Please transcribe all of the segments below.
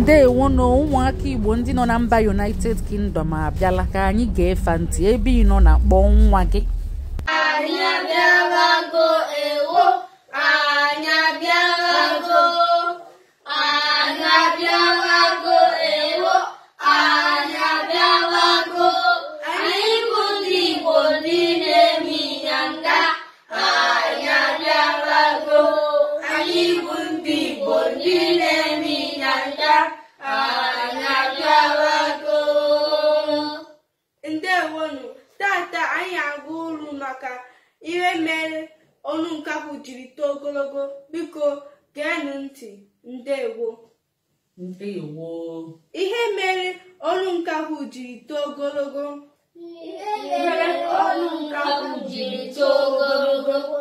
ndeewo na ụmụaka igbo ndị nọ na mba united kingdom abịala ka anyị ga-efe ntị ebe ị na kpọọ nwa gị maka ihe mere ọnụ nkapụ jiri too ogologo biko geenụ ntị ndewo ndewo ihe mere ọnụ nkapụ jiri too ogologo ihe mere ọnụ nkapụ jiri too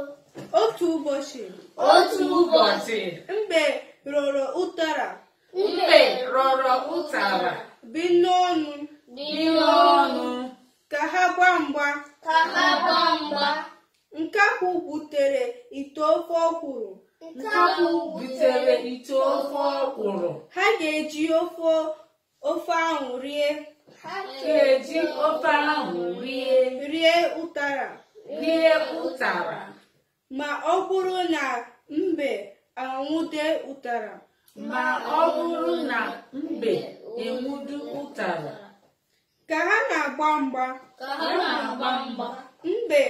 otu ụbọchị otu ụbọchị mgbe rọrọ ụtara mgbe rọrọ ụtara bi n'ọnụ bi n'ọnụ ka ha gba mgba ka ha gba mgba butere ite ofe ọkwụrụ butere ite ofe ha ga-eji ofe ofe ahụ rie ofe ahụ rie ụtara rie ụtara ma ọ bụrụ na mbe anwụde ụtara ma ọ bụrụ na mbe enwudu ụtara ka ha na-agba mgba ka ha na-agba mgba mbe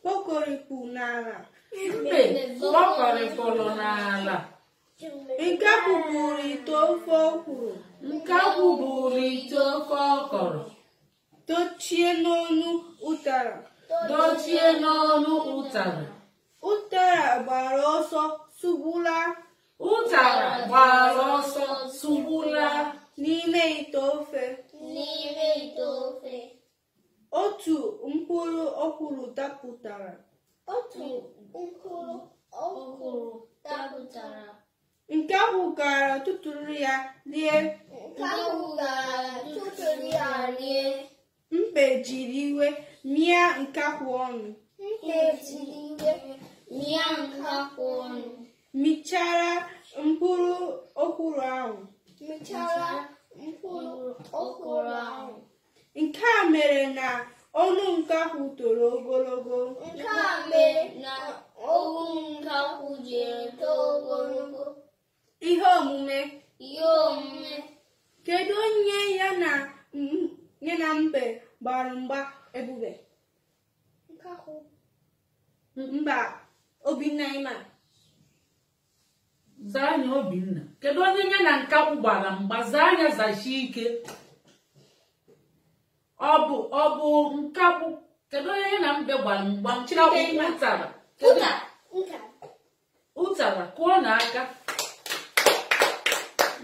kpokọrịpụ n'ala mbe kpọkọrịpụrụ n'ala nke kwụbụrụ ite ofe ọkwụrụ nke kwụbụrụ ite ofe ọkọrọ dochie n'ọnụ ụtara dochie n'ọnụ ụtara ụtara gbara ọsọ sugbula ụtara gbara ọsọ sugbula n'ime ite ofe kwuru dapụtara nke ahụ gara tụtụrụ ya rie nke ahụ gara ya rie jiri iwe mịa nke ọnụ iwe ọnụ michara mkpụrụ okwuru michara mkpụrụ okwuru ahụ nke a mere na Ọnụ ahụ toro ogologo. Nke a mere na ogwu ahụ jiri too ogologo. Ihe omume. Ihe omume. Kedu onye ya na nye na mbe gbara mgba ebube? Mba Obinna ịma. Zaa anya Obinna. Kedu onye ya na nkakwụ gbara mgba? Zaa anya ike. ọ bụ ọ bụ nkakpụ kedu onye na mbe gbara mgba ụtara ụtara kụọ na aka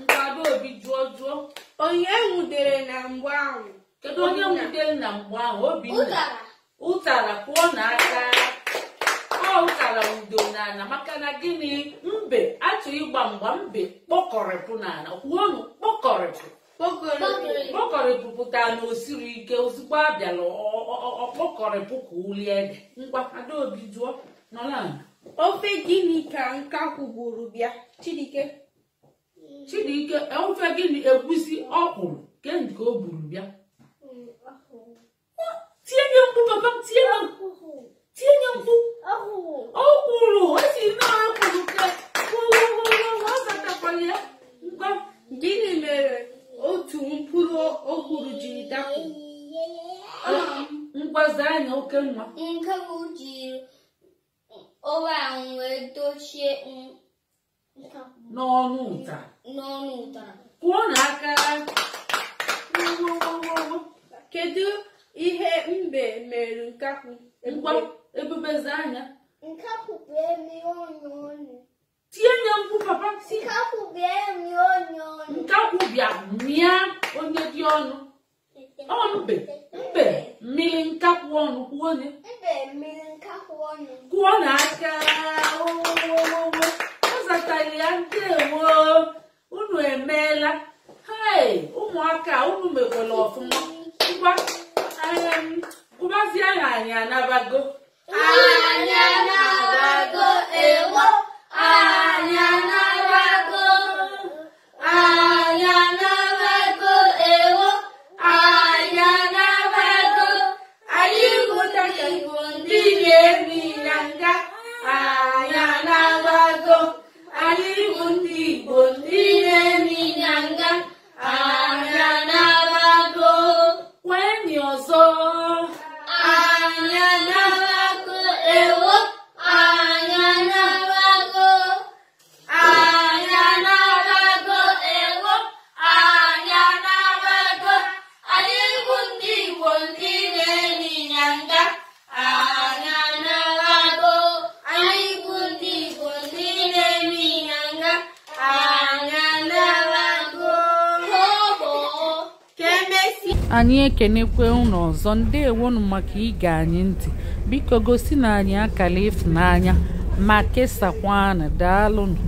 nkado obi jụọ jụọ onye nwudere na mgba ahụ kedu onye nwudere na mgba ahụ obi ụtara kụọ na aka ọ ụtara udo n'ala maka na gịnị mbe achọ ịgba mgba mbe kpọkọrịpụ n'ala kwuo kpọkọrịpụ pụta na osiri ike ozugbo a bịara ọkpọkọrịpụ ka uli ede adaobi jụọ nọla ofe gịnị ka nka kwugburu bịa chidike chidike e, ofe gịnị egwusi ọkwụrụ kendi o gburu bịa oke nwa nke bụ jiri ọwa ahụ wee dochie n'ọnụ ụta n'ọnụ ụta kwuo na aka kedu ihe mbe mere nkakwu ebubeze anya nkakwu bụ emi ọnụ ọnụ tie nye mkpu papa nkakwu bụ emi ọnụ ọnụ nkakwu bịa mịa lọlọ ọfụma ngwa ngwa zia ya anyị anabago anyị ekenekwe unu ọzọ ewonu maka ige anyị ntị biko gosi na anyị akala ịfụnanya ma kesakwanụ daalụnụ